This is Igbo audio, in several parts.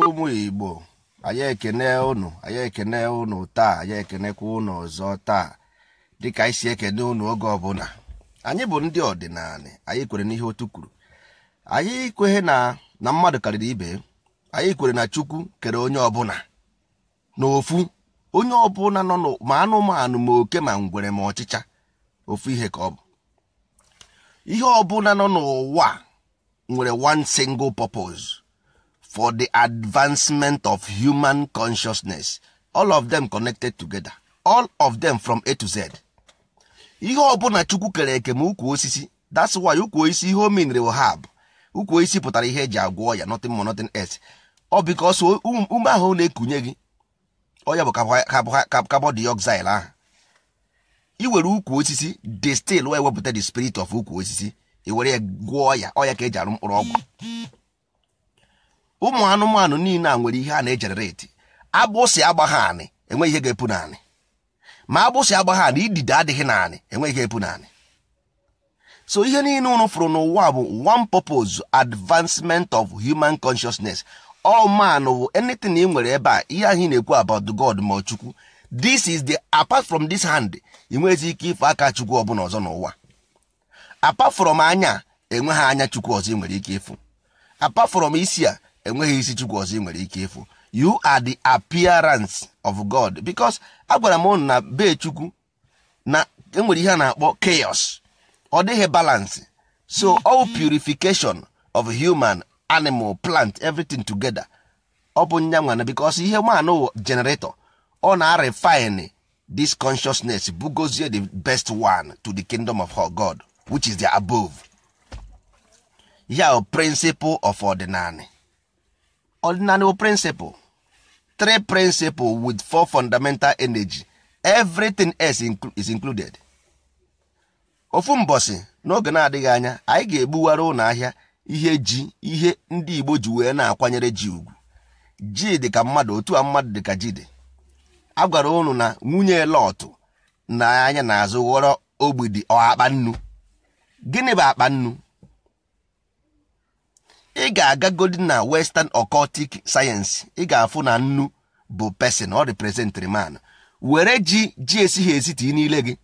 ụmụ igbo anyị ekene unu anyị ekene unu taa anyị ekenekwa unu ọzọ taa dịka anyị si ekene unu oge ọbụla anyị bụ ndị ọdịnala anyị kwere n'ihe otu kwuru anyị kwere na na mmadụ karịrị ibe anyị kwere na chukwu kere onye ọbụla n'ofu onye ọ ọbụla nọ ma anụmanụ ma oke ma ngwere ma ọchịcha ofu ihe ka ọ bụ ihe ọbụla nọ n'ụwa nwere one single purpose for the advancement of human consciousness all of them connected together all of them from a to z ihe ọbụla chukwu kere eke ma ukwu osisi that's why ukwu osisi ihe o hab ukwu osisi pụtara ihe eji agwọ ya nothing more nothing else ọ um, ume ahụ na-ekunye gị onye bụ carbon dioxide ahụ iwere ukwu osisi destil wee wepụta the spirit of ukwu osisi iwere ya gwọọ ya ọya ka eji arụ mkpụrụ ọgwụ ụmụ anụmanụ niile a nwere ihe a na-ejenereti abụsị agbagha anị enweghị ihe ga-epu naanị ma agbụsị agbagha anị idide adịghị naanị enweghị ihe epu naanị so ihe niile unu fụrụ n'ụwa bụ one purpose advancement of human consciousness all man wụ anything ị nwere ebe a ihe ahụ na-ekwu about God ma chukwu this is the apart from this hand ị ike ife aka chukwu ọbụla ọzọ n'ụwa apart from anya enweghị anya chukwu ọzọ ị nwere ike ịfụ apart from isi a enweghị isi chukwu ọzọ ị nwere ike ịfụ you are the appearance of God because agwara m ụnụ na be chukwu na enwere ihe a na-akpọ chaos ọ dịghị balance so all purification of human animal plant everything together ọ bụ nyanwana because ihe manụ generator ọ na-refine this consciousness bugozie the best one to the kingdom of her god which is the above ya principle of ordinary ordinary principle three principle with four fundamental energy everything else is included ofu mbosi n'oge na-adịghị anya anyị ga-egbuwara ụlọ ihe ji ihe ndị igbo ji wee na-akwanyere ji ugwu ji dị ka mmadụ otu a mmadụ dị ka ji dị a gwara unu na nwunye lọtụ na anya na-azụ ghọrọ ogbidi akpa nnu gịnị bụ akpa nnu ị ga-agagodi na western occultic science ị ga-afụ na nnu bụ pesin, ọ representịrị man were ji ji esighị esi tii n'ile gị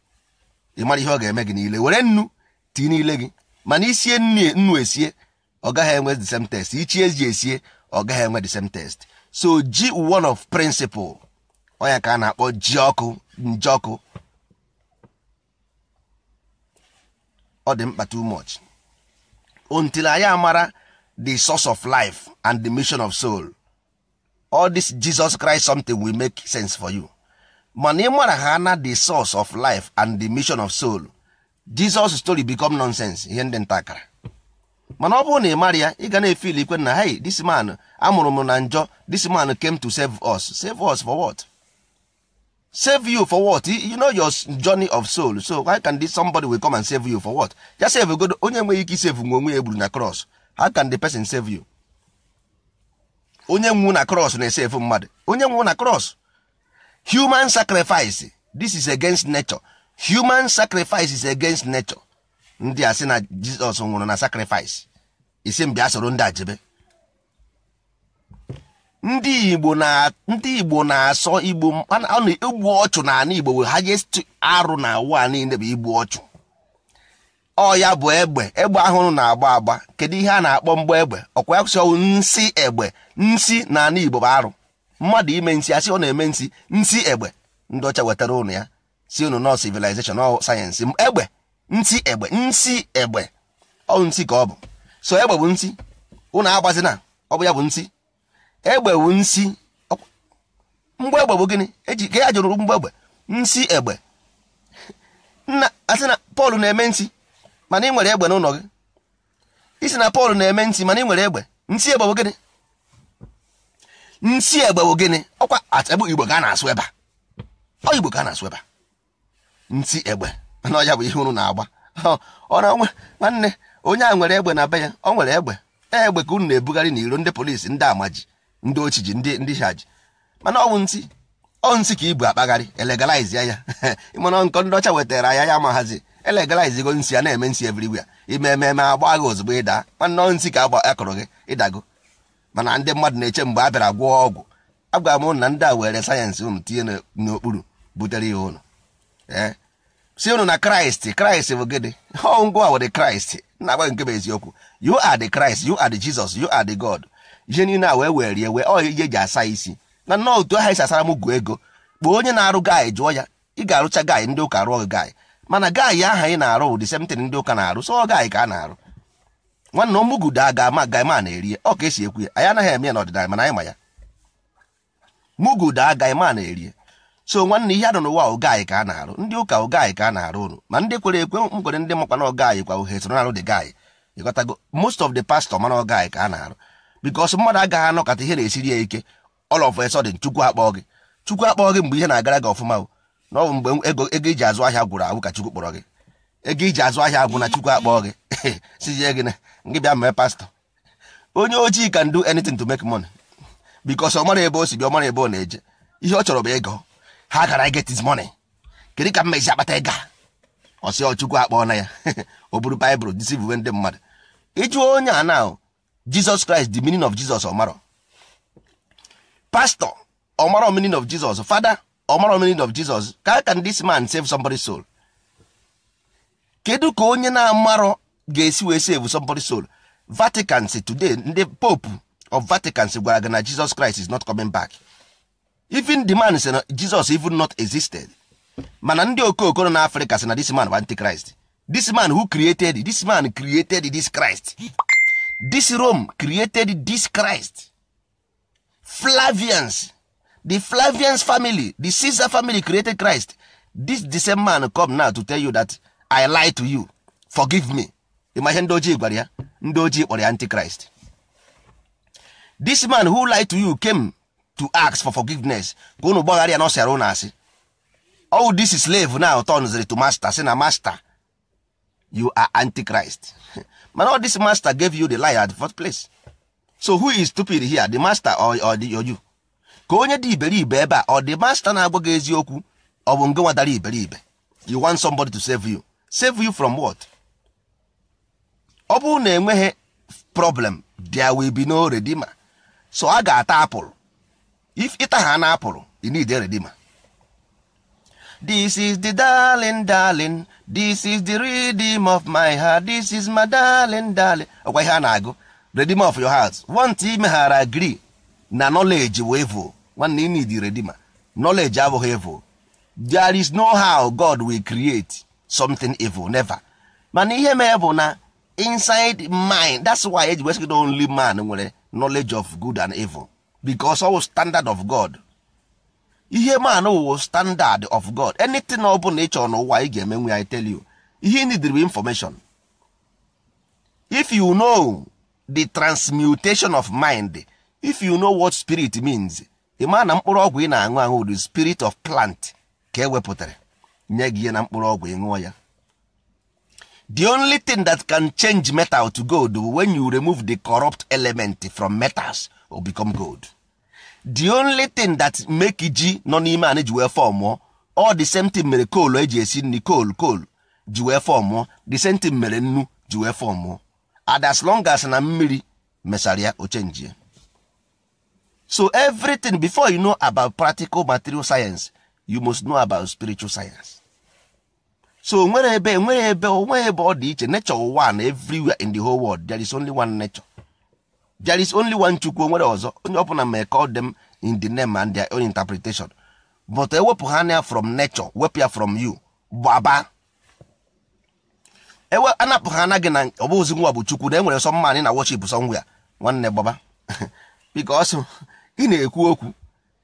ị mara ihe ọ ga-eme gị niile were nnu tii n'ile gị mana isie nnu esie ọ gaghị enwe the same test ichi eji esie ọ gaghị enwe the same test so ji one of principle ọnya ka a na-akpọ ji ọkụ nje ọkụ ọ dị mkpa too much until anyị amara the source of life and the mission of soul all this Jesus Christ something will make sense for you mana ị mara ha na the source of life and the mission of soul Jesus story become nonsense ihe ndị ntakara mana ọ bụrụ na ị mara ya ị ga na-efili ikwe na hey this man amụrụ m na njọ this man came to save us save us for what save you for what you know your journey of soul so why can this somebody will come and save you for what ya save god onye nwere ike isave nwe onwe ya egburu na cross how can the person save you onye nwu na cross na-esave mmadụ onye nwu na cross human sacrifice this is against nature human sacrifice is against nature ndị a sị na jizọs nwụrụ na sakrifis isi mbịa soro ndị a jebe ndị igbo na ndị igbo na-asọ igbo ọchụ na ana igbo ha jee arụ na ụwa niile bụ igbu ọchụ ọ ya bụ egbe egbe ahụrụ na-agba agba kedu ihe a na-akpọ mgbe egbe ọkwa ya kwụsị ọnwụ nsị egbe nsị na ana igbo bụ arụ mmadụ ime nsị asị ọ na-eme nsị nsị egbe ndị ọcha wetara ụnụ ya si ụnụ nọ civilization ọ sayensị egbe ntị egbe nsi egbe ọ ntị ka ọ bụ so egbe bụ ntị ụnụ agbazina ọ bụ ya bụ ntị egbe bụ nsị mgbe egbe bụ gịnị eji ka ya jụrụ mgbe egbe nsi egbe nna asị na Pọl na-eme ntị mana ị nwere egbe n'ụlọ gị isi na Pọl na-eme ntị mana ị nwere egbe nsi egbe bụ gịnị nsi egbe bụ gịnị ọkwa atebụ Igbo ka a na-asụ ebe a ọ Igbo ka a na-asụ ebe a ntị egbe mana ọya bụ ihe unu na-agba ọ nwanne onye a nwere egbe na be ya ọ nwere egbe e, egbe ka unu na-ebugharị na iro ndị polisi ndị amaji ndị ochiji ndị ndị shaji mana ọwụ ntị ọ ka ibu akpagharị elegalizi ya mana nkọ ndị ọcha wetara ya ya ma hazi elegalizigo nsị ya na-eme nsị everywhere ime ememe agba gị ozugbo ịda nwanne ọ ntị ka akụrụ gị ịdago mana ndị mmadụ na-eche mgbe a bịara gwọọ ọgwụ agwara m na ndị a were sayensị unu tinye n'okpuru butere ya ụlọ ee si unu na kraịst kraịst bụ gịnị ọ ngwa were kraịst na-agbaghị nke bụ eziokwu yu ad kraịst Christ ad jizọs yu ad God ihe niile a wee rie wee ọ ihe eji asa isi na nnọọ otu aha esi asara m gụọ ego kpọọ onye na-arụ gaị jụọ ya ị ga-arụcha gaị ndị ụka rụọ gị gaị mana gaị aha ị na-arụ ụdị semtin ndị ụka na-arụ sọ gaị ka a na-arụ nwanne ọmụgudo a ga-ama gaị ma na-eri ọ ka esi ekwu ya anyị anaghị eme ya n'ọdịnala mana anyị ma ya mugudo a gaị ma na-eri so nwanne ihe adọ n'ụwa ogaanyị ka a na-arụ ndị ụka ogaanyị ka a na-arụ ụnụ ma ndị kwere ekwe mkpere ndị makwa na ogaanyị kwa uhe soro na-arụ dị gaanyị ịghọtago most of the pastor mana ogaanyị ka a na-arụ bikos mmadụ agaghị anọkọta ihe na-esiri ya ike all of a sudden chukwu akpọọ gị chukwu akpọọ gị mgbe ihe na-agara gị ọfụma na ọ mgbe ego ego iji azụ ahịa gwụrụ agwụ ka chukwu kpọrọ gị ego iji azụ ahịa agwụ na chukwu akpọọ gị sizie gị gị bịa mee pastọ onye ojii can do to make money bikos ọ mara ebe o si bịa ọ mara ebe ọ na-eje ihe ọ chọrọ bụ ego ha gara I get his money kedu ka mmezi akpata ịga ọsị ọchukwu akpọọ na ya o buru baịbụl disivwe ndị mmadụ ịjụ onye a na Jesus Christ the meaning of Jesus ọmarọ pastor ọmarọ meaning of Jesus father ọmarọ meaning of Jesus how can this man save somebody's soul kedu ka onye na-amarọ ga-esi wee save somebody's soul Vatican today ndị pope of Vatican gwara gị na Jesus Christ is not coming back even the man sị na Jesus even not existed mana ndị okooko na n'Africa sị na this man of antichrist this man who created this man created this Christ this Rome created this Christ Flavians the Flavians family the Caesar family created Christ this the same man come now to tell you that I lie to you forgive me ịma ihe ndị ojii gwara ya ndị ojii kpọrọ ya antichrist this man who lie to you came to ask for forgiveness ka unu gbaghara ya na asị all oh, this is slave now turns to master sị na master you are antichrist mana all this master gave you the lie at the first place so who is stupid here the master or, or, the, or you ka onye dị iberibe ebe a ọ dị master na-agwa gị eziokwu ọ bụ nge nwadara iberibe you want somebody to save you save you from what ọ bụrụ na enweghị problem there will be no redeemer so a ga-ata apụl if ịta ha na-apụrụ you need a redeemer this is the darling darling this is the rhythm of my heart this is my darling darling ọkwa ihe a na-agụ redeem of your heart want imeghara agree na knowledge wee voo nwanne you need a redeemer knowledge abụghị evil there is no how God will create something evil never mana ihe mee bụ na inside mind that's why eji wesịgide only man nwere knowledge of good and evil because ọ wụ standard of god ihe man wụ standard of god anything ọ bụla ị chọrọ n'ụwa ị ga-emenwe ya I tell you ihe information if you know the transmutation of mind if you know what spirit means ị maa na mkpụrụ ọgwụ ị na-aṅụ aṅụ the spirit of plant ka e wepụtara nye gị ihe na mkpụrụ ọgwụ ị ṅụọ ya the only thing that can change metal to gold when you remove the corrupt element from metals or become gold the only thing that make ji nọ n'ime anị ji wee fọọ mụọ ọ the same thing mere koolu eji esi nri coal koolu ji wee fọọ mụọ the same thing mere nnu ji wee fọọ mụọ and as long as na mmiri mesara ya o so everything before you know about practical material science you must know about spiritual science so nwere ebe nwere ebe onwe ebe ọ dị iche nature one everywhere in the whole world there is only one nature there is only one chukwu onwere ọzọ onye ọbụla may call them in the name and their own interpretation but ewepụ ha ya from nature wepụ ya from you gbaba ewe anapụ ha gị na ọ bụ nwa bụ chukwu na enwere sọ ị na worship somewhere nwanne gbaba because ị na-ekwu okwu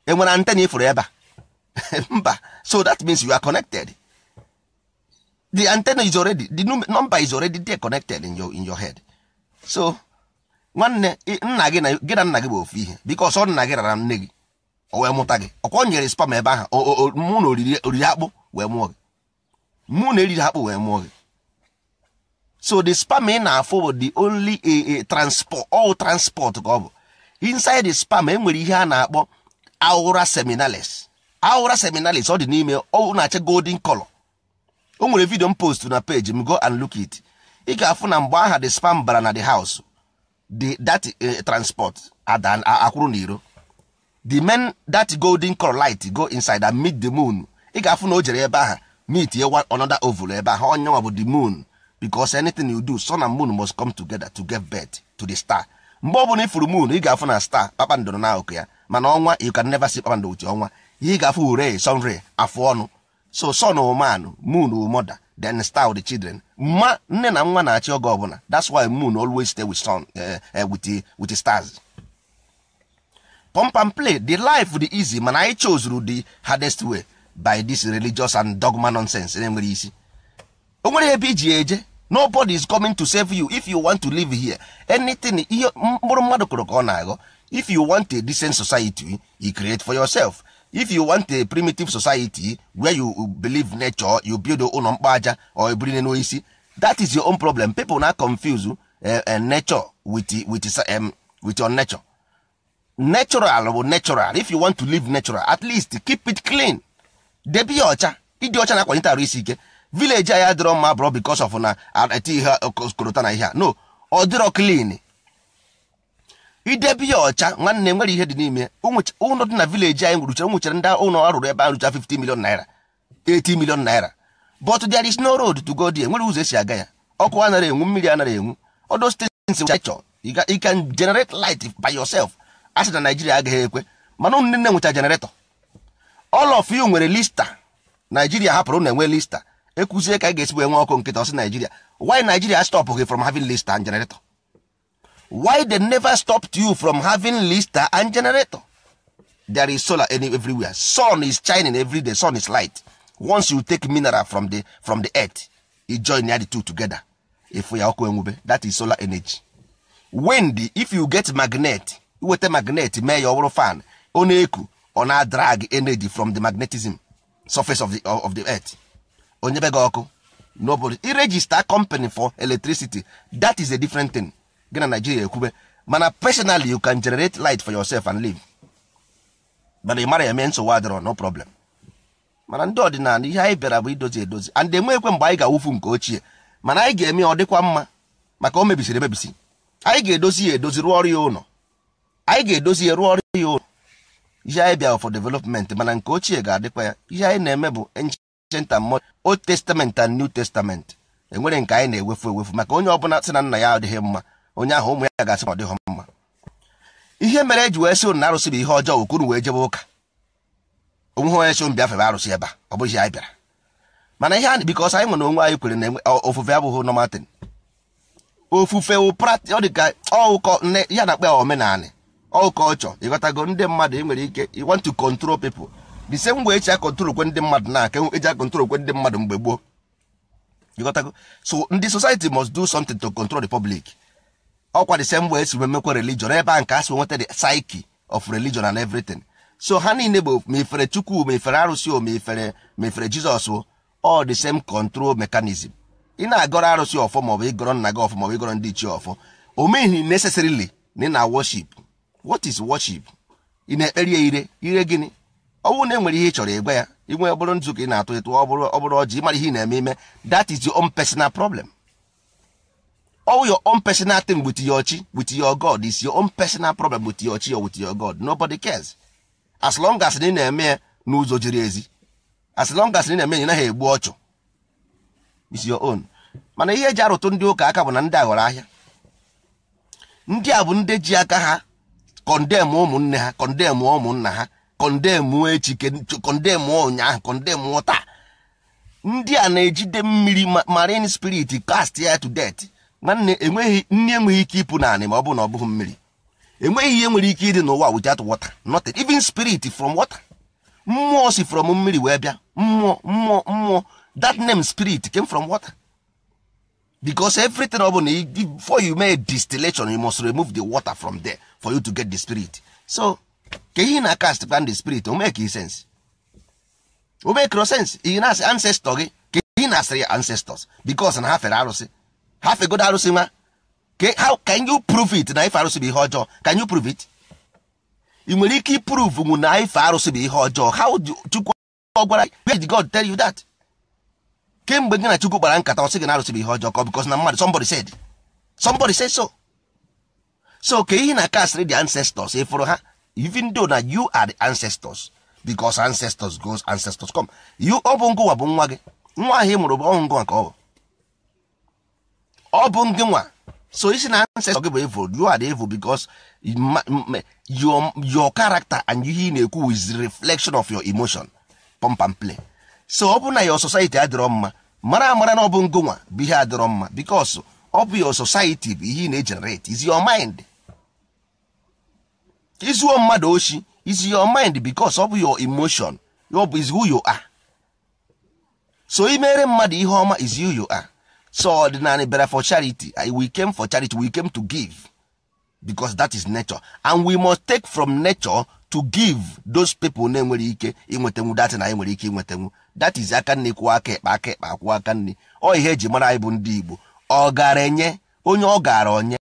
enwere antena ifuru ebe a mba so that means you are connected the antenna is already the number is already there connected in your, in your head so nwanne nna gị na gị na nna gị bụ ofu ihe biko ọsọ nna gị rara nne gị o wee mụta gị ọkwa nyere spam ebe ahụ mụ na oriri akpụ wee mụọ gị mụ na eriri akpụ wee mụọ gị so the spam ị na-afụ bụ the only a transport all transport ka ọ bụ inside the spam enwere ihe a na-akpọ aura seminalis aura seminalis ọ dị n'ime ọ na achị golden color o nwere vidio m post na page m go and look it ị ga-afụ na mgbe aha the spam bara na the house the that uh, transport adan akwụrụ na iro the men that golden color light go inside and meet the moon ị ga-afụ na o jere ebe aha meet ye one another oval ebe aha onye nwa bụ the moon because anything you do sun and moon must come together to get birth to the star mgbe ọ bụla ifuru moon ị ga-afụ na star kpakpando na akụkụ ya mana ọnwa you can never see kpakpando otu ọnwa ị ga-afụ ure sun afụ ọnụ so sun woman moon woman then star the children mma nne na nwa na-achị oge ọbụla that's why moon always stay with sun eh, eh, eh, with the, stars pump and play the life di easy mana anyị chozuru the hardest way by this religious and dogma nonsense na-enwere isi o nwere ebe iji eje nobody is coming to save you if you want to live here anything ihe mkpụrụ mmadụ kụrụ ka ọ na-aghọ if you want a decent society you create for yourself if you want a primitive society where you believe nature you build ụlọ mkpa aja or ebiri n'isi that is your own problem people na confuse uh, nature with, with, um, with your nature natural bụ natural if you want to live natural at least keep it clean debe ya ọcha ịdị ọcha na-akwanyete arụ isi ike village anyị adịrọ mma bụrụ because of na eti ihe korota na ihe a no ọ dịrọ clean idebe ya ọcha nwanne nwere ihe dị n'ime ụlọ dị na vileji anyị nwurucha nwuchere ndị ụlọ arụrụ ebe a arụcha 50 million naira 80 million naira but there is no road to go there nwere ụzọ esi aga ya ọkụ anara enwu mmiri anara enwu odo stations chọ you can generate light by yourself asị na Nigeria agaghị ekwe mana ụmụ nne nweta generator all of you nwere lista Nigeria hapụrụ na enwe lista ekwuzie ka a ga-esibu enwe ọkụ nkịta ọsị Nigeria why Nigeria stop from having lista and generator why they never stopped you from having lister and generator there is solar everywhere sun is shining every day sun is light once you take mineral from the from the earth e join the two together efu ya ọkụ enwube that is solar energy wind if you get magnet iweta magnet mee ya ọ fan ọ na-eku ọ na-drag energy from the magnetism surface of the, of the earth onye be gị ọkụ nobody iregister company for electricity that is a different thing. gị na naijiria ekwube mana personally you can generate light for yourself and live mana ị mara eme nsogbu adịrọ no problem mana ndị ọdịnala ihe anyị bịara bụ idozi edozi and ekwe mgbe anyị ga-awụfu nke ochie mana anyị ga-eme ọ dịkwa mma maka o mebisiri emebisi anyị ga-edozi ya edozi e rụọ ọrụ ya ụlọ anyị ga-edozi ya e rụọ ọrụ ya ụlọ ihe anyị bịara for development mana nke ochie ga-adịkwa ya ihe anyị na-eme bụ ancient and modern old testament and new testament enwere nke anyị na-ewefu ewefu maka onye ọbụla sị na nna ya adịghị mma onye ahụ ụmụ ya ga-asị na ọ dịghị mma ihe mere eji wee sị ụnụ na arụsị bụ ihe ọjọọ okunu wee jebe ụka onwe ha onye so m bịafere arụsị ebe a ọ bụghị anyị bịara mana ihe anyị bikọs anyị nwere onwe anyị kwere na ofufe abụghị nọmatin ofufe ọ dị ka ọụkọ nne ya na-akpa omenala ọụkọ ọchọ ịghọtago ndị mmadụ e nwere ike you want to control people the same way eji akọntrol ndị mmadụ na aka eji akọntrol kwe ndị mmadụ mgbe gboo ịghọtago so ndị society must do something to control the public ọkwa the same esi esiri emekwa religion ebe a nke a si nweta the psyche of religion and everything so ha niile bụ ma ifere chukwu ma ifere arụsị o ma ma ifere jizọs all the same control mechanism ị na-agọrọ arụsị ọfọ maọbụ ịgọrọ nna gị ọfọ maọbụ ịgọrọ ndị ichie ọfọ o meghị na ị na worship what is worship ị na-ekpere ya ire ire gịnị ọ bụrụ na enwere ihe ị chọrọ ịgwa ya inwe bụrụ nzu ka ị na-atụ ịtụ ọ bụrụ ọjị ịmara ihe ị na-eme ime that is your own personal problem all your own personal thing with your chi with your god is your own personal problem with your chi or with your god nobody cares as long as ị na-eme n'ụzọ jiri ezi as long as ị na-eme ya naghị egbu ọchụ is your own mana ihe eji arụtụ ndị ụka aka bụ na ndị a ghọrọ ahịa ndị a bụ ndị ji aka ha kọndemụ ụmụnne ha kọndemụ ụmụnna ha kọndemụ echi kọndemụ ụnyaahụ kọndemụ taa ndị a na-ejide mmiri marine spirit cast ya to death nwanne enweghị nne enweghị ike ịpụ naanị ma ọ bụrụ na ọ bụghị mmiri enweghị ihe nwere ike ịdị n'ụwa without water nothing even spirit from water mmụọ si from mmiri wee bịa mmụọ mmụọ mmụọ that name spirit came from water because everything ọ bụla before you make distillation you must remove the water from there for you to get the spirit so ka ihe na cast plan the spirit o make sense o make sense ihe na-asị ancestor gị ka ihe na-asịrị ancestors because na ha fere arụsị ha fegodo arụsị nwa how can you prove it na ife arụsị bụ ihe ọjọọ can you prove it ị nwere ike prove nwụ na ife arụsị bụ ihe ọjọọ how chukwu ọ gwara where did god tell you that kemgbe gị na chukwu kpara nkata ọ gị na arụsị bụ ihe ọjọọ ka because na mmadụ somebody said somebody said so so ka ihe na castrate the ancestors ịfụrụ e ha even though na you are the ancestors because ancestors goes ancestors come you ọ bụ ngụwa bụ nwa gị nwa ahụ ị mụrụ bụ ọhụ ngụwa ka ọ bụ ọ bụ ndị nwa so isi na ancestor gị bụ evil you are the evil because your character and ihe ị na-ekwu is reflection of your emotion pump and play so ọ bụ na your society adịrọ mma mara amara na ọ bụ ngụ nwa bụ ihe adịrọ mma because ọ bụ your society bụ ihe ị na-egenerate is your mind izuo mmadụ oshi is your mind because ọ bụ your emotion bụ is who you are so imere mmadụ ihe ọma is who you are so ordinary bịara for charity we came for charity we came to give because that is nature and we must take from nature to give those people na-enwere ike inwetanwu datị na enwere ike inwetanwu that is aka nne kwụọ aka ekpe aka ekpe akwụọ aka nne ọ ihe eji mara anyị bụ ndị Igbo ọ gara enye onye ọ gara onye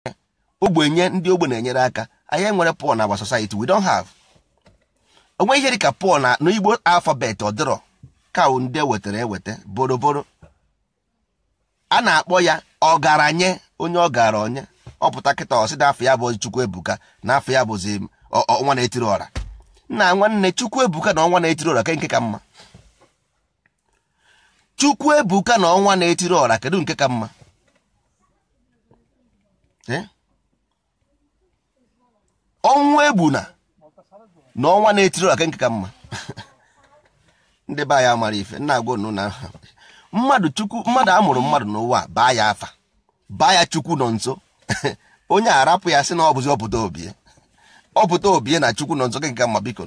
ogbenye ndị ogbe na-enyere aka anyị enwere Paul na agba society we don have onwe ihe dịka Paul na n'Igbo alfabet ọdịrọ kawu ndị ewetara eweta boroboro a na-akpọ ya ọgaranye onye ọgara onye ọpụta kịta ọsị na afọ ya bụ chukwu ebuka na afọ ya bụzi ọnwa na-etiri ọra nna nwanne chukwu ebuka na ọnwa na-etiri ọra ke nke ka mma chukwu ebuka na ọnwa na-etiri ọra kedu nke ka mma ọnwa egbuna na ọnwa na-etiri ọra ke nke ka mma ndị be anyị mara ife nna agwa unu na ha mmadụ chukwu mmadụ amụrụ mmadụ n'ụwa baa ya afa baa ya chukwu nọ nso onye arapụ ya sị na ọ bụzi ọpụta obie ọpụta obie na chukwu nọ nso gị ga mma biko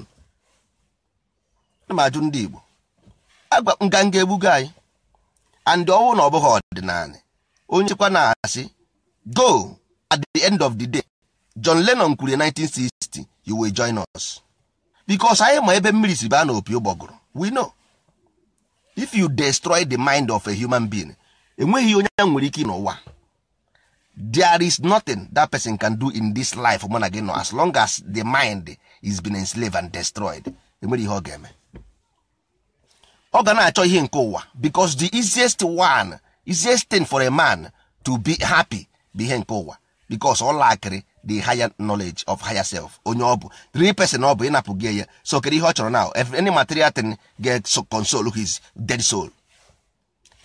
ma ajụ ndị igbo "agwa nganga egbugo anyị and ọnwụ na ọ bụghị ọdịnala onye chekwa na-asị go at the end of the day John Lennon kwuru 1960 you will join us because anyị ma ebe mmiri si baa na opi ụgbọgụrụ we know if you destroy the mind of a human being enweghị onye nwere ike n'ụwa there is nothing that person can do in this life mụ na as long as the mind is been enslaved and destroyed enwere ihe ọ ga-eme ọ ga na-achọ ihe nke ụwa because the easiest one easiest thing for a man to be happy bụ ihe nke ụwa because ọ lakịrị the higher knowledge of higher self onye ọ bụ three person ọ bụ ịnapụ gị ya so kedu ihe ọ chọrọ now if any material thing ga console his dead soul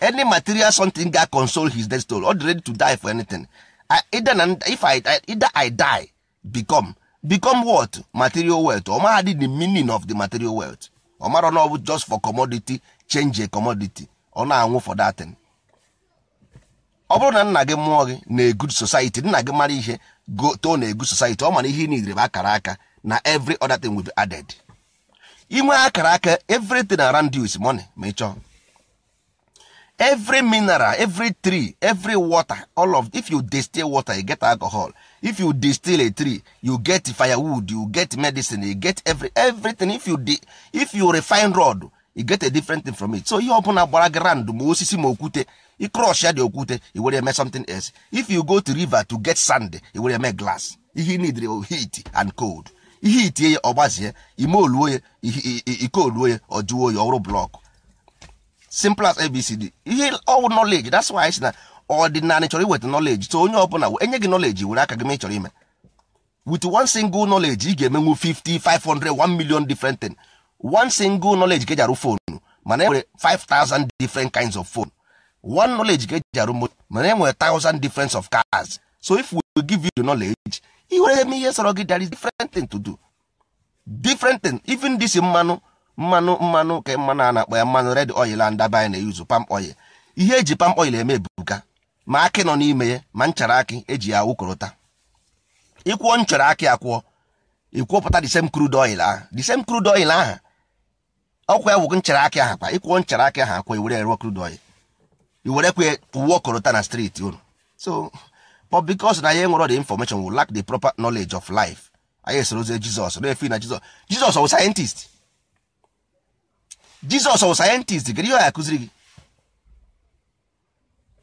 any material something ga console his dead soul ọ dị ready to die for anything I, either na if I, either I die become become what material wealth ọ maha dị the meaning of the material wealth ọ mara na ọ bụ just for commodity change a commodity ọ na-anwụ for that thing ọ bụrụ na nna gị mụọ gị na a good society nna gị mara ihe go to na egu society ọ mana ihe niile bụ akara aka na every other thing will be added inwe akara aka everything around you is money ma ịchọ every mineral every tree every water all of if you distill water you get alcohol if you distill a tree you get firewood you get medicine you get every everything if you di if you refine rod you get a different thing from it so ihe ọbụla gbara gị ma osisi ma okwute i crush ya dị okwute iwere were eme something else if you go to river to get sand iwere were eme glass ihe need heat and cold ihe itie ya ọ gbazie ime oluo ya ike oluo ya ọ jụọ oyi ọrụ simple as abcd ihe ọwụ knowledge that's why si na ọdịnala chọrọ iweta knowledge so onye ọbụla enye gị knowledge were aka gị ma ị chọrọ ime with one single knowledge ị ga-emenwu 50 500 1 million different thing one single knowledge ka eji arụ mana e nwere different kinds of phone one knowledge ka eji arụ moto mana e nwere thousand difference of cars so if we give you the knowledge i were eme ihe sọrọ gị there is different thing to do different thing even this mmanụ mmanụ mmanụ ka mmanụ a na-akpọ ya mmanụ red oil and dabanye na-eyuzu palm oil ihe eji palm oil eme ebuka ma akị nọ n'ime ya ma nchara akị eji ya awụkọrọta ịkwụọ nchara akị akwụọ ịkwụọpụta the same crude oil ahụ the same crude oil ahụ ọkwa ya wụgo nchara akị ahụ kwa ịkwụọ nchara akị ahụ akwụọ iwere erụọ crude oil iwerekwe uwe ta na streeti unu so but because na ya nwere the information will lack the proper knowledge of life anyị soro ozi jizọs na-efe na jizọs jizọs ọwụ sayentist jizọs ọwụ sayentist gịrị ihe ya akụziri gị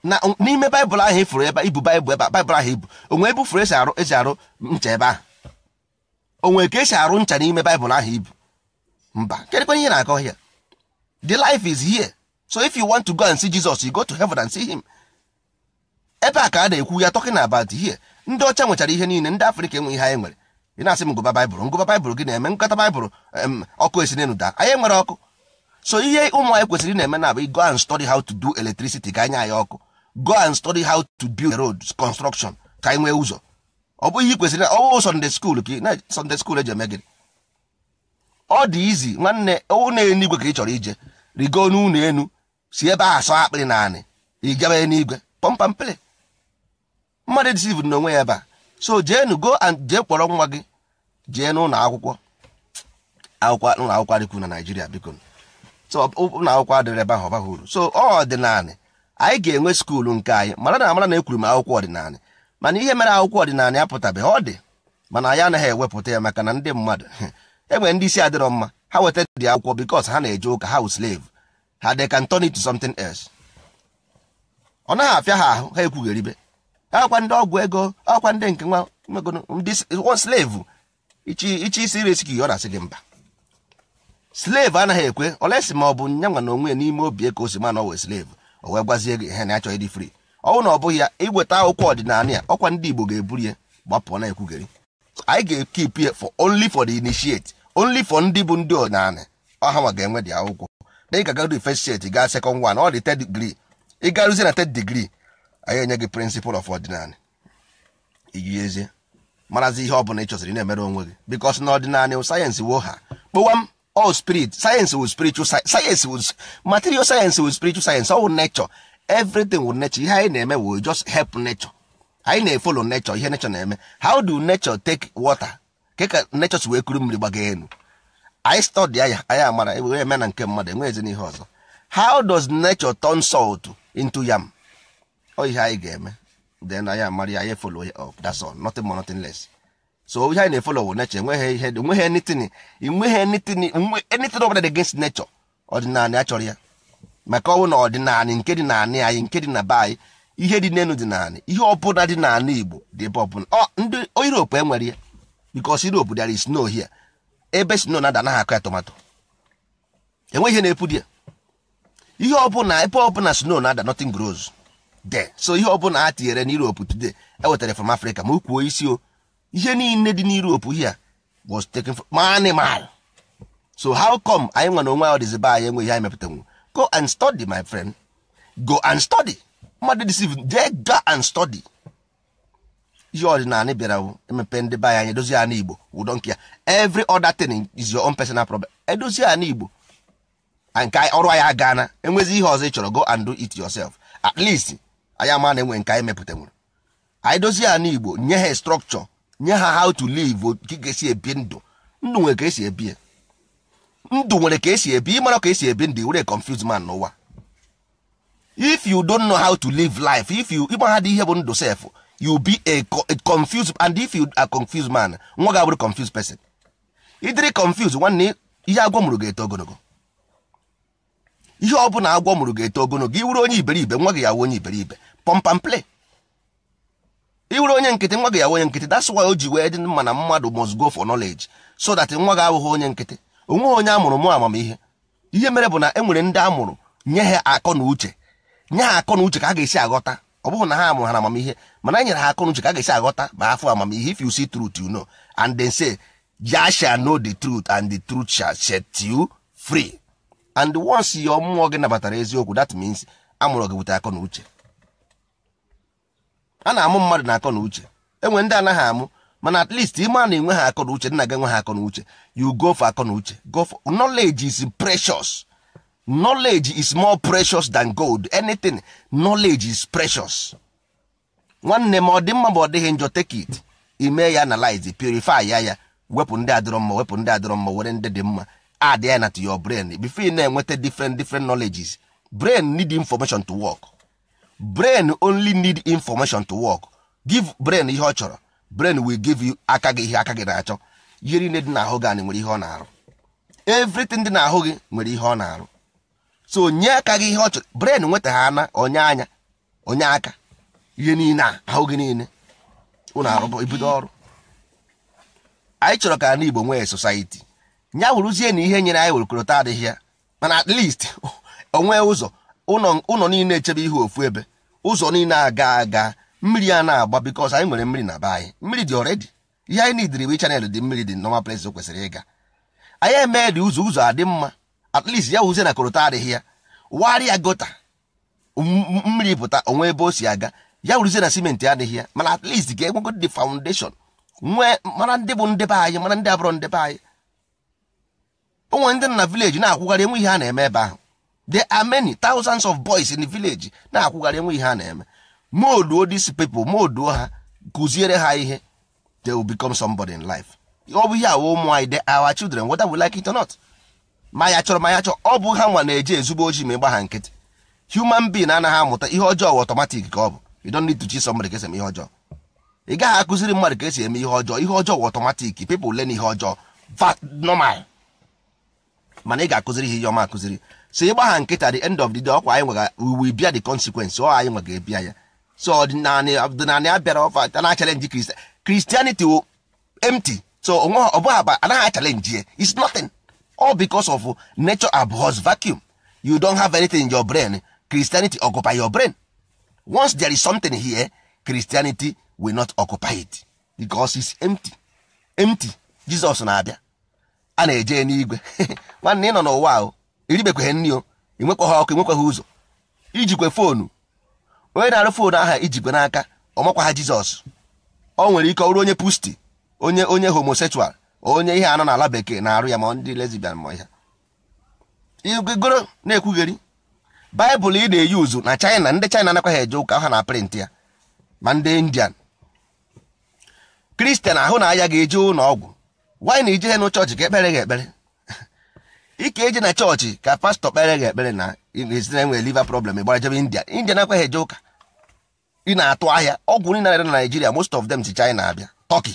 na n'ime baịbụl ahụ ifuru e ebe ibu baịbụl ebe baịbụl ahụ ibu e onwe ebe furu esi arụ esi arụ ncha ebe ahụ onwe ka esi arụ ncha n'ime baịbụl ahụ ibu e mba kedịkwa ihe na-akọ hịa the life is here so if you want to go and see Jesus you go to heaven and see him ebe a ka a na-ekwu ya talking about here ndị ọcha nwechara ihe niile ndị afrịka enwe ihe anyị nwere ị na-asị m ngụba baịbụl ngụba baịbụl gị na-eme nkata baịbụl ọkụ esi n'elu daa anyị nwere ọkụ so ihe ụmụ anyị kwesịrị na-eme na abụ go and study how to do electricity ka anya anyị ọkụ go and study how to build road construction ka anyị nwee ụzọ ọ bụghị kwesịrị na ọwụ Sunday school ka na Sunday school eji eme gịnị ọ dị izi nwanne ụlọ enigwe ka ị chọrọ ije rigo n'ụlọ enu si ebe a asọ akpịrị naanị ịgabe n'igwe pọmpampịrị mmadụ disiv n'onwe ya ebe a so jeenu go and jee kpọrọ nwa gị jee n'ụlọ akwụkwọ akwụkwọ ụlọ akwụkwọ adịkwu na naijiria biko so ụlọ akwụkwọ adịrị ebe ahụ ọbaghị uru so ọ ọdịnalị anyị ga-enwe skuulu nke anyị mara na amara na ekwuru m akwụkwọ ọdịnala mana ihe mere akwụkwọ ọdịnala apụtabeghị ọ dị mana anyị anaghị ewepụta ya maka na ndị mmadụ enwere ndị isi adịrọ mma ha wetara dị akwụkwọ bikos ha na-eje ụka ha wụ slave ha they can turn it to something else. ọ naghị afịa ha ahụ ha ekwugheribe akwa ndị ọgwụ ego akwa ndị nke nwa ndị slave ichi isi iresi gị ọ na-asị gị mba slave anaghị ekwe olesi ma ọ bụ nya nwa na onwe ya n'ime obi e ka o si ma na ọ wee o wee gwazie gị ihe na achọghị dị free ọnwụ na ọ bụghị ya iweta akwụkwọ ọdịnala ya ọkwa ndị Igbo ga-eburu ya gbapụ na ekwugheri anyị ga-ekip for only for the initiate only for ndị bụ ndị ọdịnala ọha ma ga-enwe dị akwụkwọ na ị ga-agarudi first set gaa second one ọ dị third degree ị garụzie na third degree anyị enye gị principle of ordinary iyiezie marazi ihe ọ bụla ị chọsiri na-emere onwe gị because na ọdịnala sayensị wo ha kpọwa m all spirit sayensị will spiritual sayensị will material science will spiritual science all nature everything will nature ihe anyị na-eme will just help nature anyị na-efolo nature ihe nature na-eme how do nature take water ka nature si wee kuru mmiri gbaga elu anyị stọdịa ya anyị amara were eme na nke mmadụ enweghịzi n'ihe ọzọ how does nature turn salt into yam O ihe anyị ga-eme then anyị amara ya anyị follow ya up that's all nothing more nothing less so ihe anyị na-efolowo nature enweghị ihe enweghị anything enweghị anything anything ọbụla dị against nature ọdịnala achọrọ ya maka ọnwụ na ọdịnala nke dị n'anị anyị nke dị na be anyị ihe dị n'elu dị n'anị ihe ọbụla dị n'anị Igbo dị ebe ọbụla ndị Europe enwere ya because Europe there is no here ebe sno na ada anaghị akụ ya tomato enweghị ihe na-epu di ihe ọbụla ebe ọbụla sno na ada nothing grows de so ihe ọbụla a tinyere na Europe today ewetara from Africa ma ukwuo isi o ihe niile dị na Europe here was taken from animal so how come anyị nwa na onwe anyị dịzi be anyị enweghị anyị mepụtanwu go and study my friend go and study mmadụ deceive dee go and study ihe ọdịnala bịara emepe ndị be anyị edozi ana igbo ụdọ nke ya every other thing is your own personal problem edozi ana igbo ah, nke ọrụ anyị agaana enwezi ihe ọzọ ị chọrọ go and do it yourself at least anyị ama na enwe nke anyị nwere. anyị dozie ana igbo nye ha structure nye ha how to live ka ị ga-esi ebi ndụ ndụ nwere ka esi ebi ndụ nwere ka esi ebi ịmara ka esi ebi ndụ were confuse man n'ụwa if you don't know how to live life if you ịgba ha dị ihe bụ ndụ self you be a, a confused and if you are confused man nwa gị abụrụ confused person ịdịrị confused nwanne ihe agwọ mụrụ ga-eto ogologo ihe ọ bụla agwọ mụrụ ga-eto ogologo iwuru onye iberibe nwa gị ya wụ onye iberibe pompam play iwuru onye nkịtị nwa gị ya onye nkịtị that's why o ji wee dị mma na mmadụ must go for knowledge so that nwa gị abụghị onye nkịtị onweghị onye amụrụ mụ amamihe ihe mere bụ na e nwere ndị amụrụ nye ha akọ na uche nye ha akọ na uche ka a ga-esi aghọta ọ bụrụ na ha amụrụ ha na amamihe mana e nyere ha akọnuche ka a ga-esi aghọta ma afọ amamihe if you see truth you know and then say ya shall know the truth and the truth shall set you free and once your mmụọ gị nabatara eziokwu that means amụrụ gị bute akọ na uche a na-amụ mmadụ na akọ na uche enwe ndị anaghị amụ mana at least ime a na-enwe ha akọ na uche nna gị enwe ha akọ na uche you go for akọ na uche go for knowledge is precious knowledge is more precious than gold anything knowledge is precious nwanne ma ọ dị mma ma ọ dịghị njọ take it ime ya analyze purify ya ya wepụ ndị adịrọ mma wepụ ndị adịrọ mma were ndị dị mma add ya na to your brain before ị na-enweta different different knowledges brain need information to work brain only need information to work give brain ihe ọ chọrọ brain will give you aka gị ihe aka gị na-achọ yiri ne dị n'ahụ gị anyị nwere ihe ọ na-arụ everything dị n'ahụ gị nwere ihe ọ na-arụ so nye aka gị ihe ọ chọrọ bren nweta ha ana onye anya onye aka ihe niile a ahụ gị niile ụlọ arụbọ ibido ọrụ anyị chọrọ ka igbo nwee sosaiti nya wụrụzie na ihe nyere anyị werekọrọta adịghị ya mana at least onwee ụzọ ụlọ niile echebe ihe ofu ebe ụzọ niile aga aga mmiri a na-agba because anyị nwere mmiri na be anyị mmiri dị already ihe anyị nidiri bụ chanel dị mmiri dị normal place kwesịrị ịga anyị emee dị ụzọ ụzọ adị mma at least ya wuzie na korota adịghị ya warịa gota mmiri pụta onwe ebe o si aga ya wuzie na simenti adịghị ya mana at least ga egwego the foundation nwee mara ndị bụ ndebe anyị mara ndị abụrụ ndebe anyị nwere ndị na village na-akwụgharị enwe ihe a na-eme ebe ahụ the are tausands of boys in the village na-akwụgharị enwe ihe a na-eme moduo these people moduo ha kụziere ha ihe they will become somebody in life ọ bụ ihe awa ụmụ anyị they our children whether we like it or not ma ya chọrọ ma ya chọọ ọ bụ ha nwa na-eje ezigbo ojii ma ịgba ha nkịtị human being anaghị amụta ihe ọjọọ wụ otomatik ka ọ bụ you don't need to teach somebody ka esi eme ihe ọjọọ ị gaghị akụziri mmadụ ka esi eme ihe ọjọọ ihe ọjọọ wụ otomatik people learn ihe ọjọọ vat normal mana ị ga-akụziri ihe ihe ọma akụziri so ịgba ha nkịta the end of the day ọkwa anyị nwega we bịa the consequence ọ anyị nwega ebia ya so ọdịnala ọdịnala abịara ọfa na chalenji kristianity wo empty so onwe ọ bụghị aba anaghị achalenji ya it's nothing all because of nature abhors vacuum you don't have anything in your brain christianity occupy your brain once there is something here christianity will not occupy it because it's empty empty jesus na-abịa a na-eje n'igwe nwanne ị nọ n'ụwa o iribekweghị nri o enwekweghị ọkụ enwekweghị ụzọ ijikwe foonu onye na-arụ foonu aha ijikwe n'aka ọmakwa ha jizọs ọ nwere ike ọrụ onye pusti onye onye homosexual onye ihe anọ n'ala bekee na-arụ ya ma ndị lesbian ma ya igoro na-ekwugheri baịbụl ị na-eyi uzu na china ndị china anakwaghị eje ụka ha na prịntị ya ma ndị indian kristian ahụ na aya ga-eje ụlọ ọgwụ wanyị ije e e na chọọchị ka ekpere gị ekpere ike eje na chọọchị ka pastọ kpere gị ekpere na ezinụlọ nwere liva problem gbara jebe india india nakwaghị eje ụka ị na-atụ ahịa ọgwụ nri na na naijiria most of them si china abịa tọki